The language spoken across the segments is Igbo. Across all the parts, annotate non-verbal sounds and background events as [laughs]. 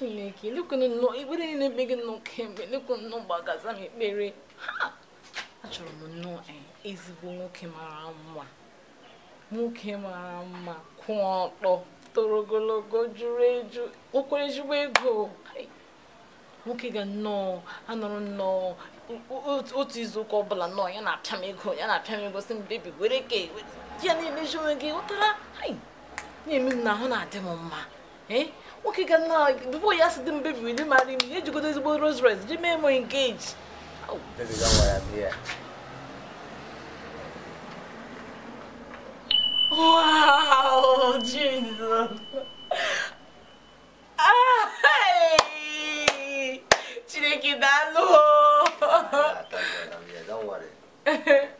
chineke lekwenụ nnọọ ikpere niile ebe gị nnọọ kemgbe lekwenụ nnọọ gbagaza m ekpere ha achọrọ m nnọọ ezigbo nwoke mara mma nwoke mara mma kwụ ọtọ toro ogologo juru eju okwere ezigbo ego nwoke ga nnọọ anọrọ nnọọ otu izuụka ọbụla nnọọ ya na-apịa m ego ya na-apịa m ego si m bebi were ka ya na-emeji onwe gị ghọtara na-eme m na ahụ na-adị m mma Eh? o nwoke ga é na bifo ya si dị mbe biri ndị né, mara imi ejigodo ezigbo Rolls Royce ji mee m engage Wow, Jesus. Ai! Tirei que dar no. Ah, tá Don't worry. [laughs]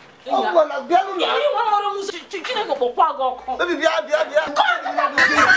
ọmọ na bịa nụ na. Ihe ịwa ọrụ m si chineke kpọkwa gị ọkụ. Ebi bịa bịa bịa.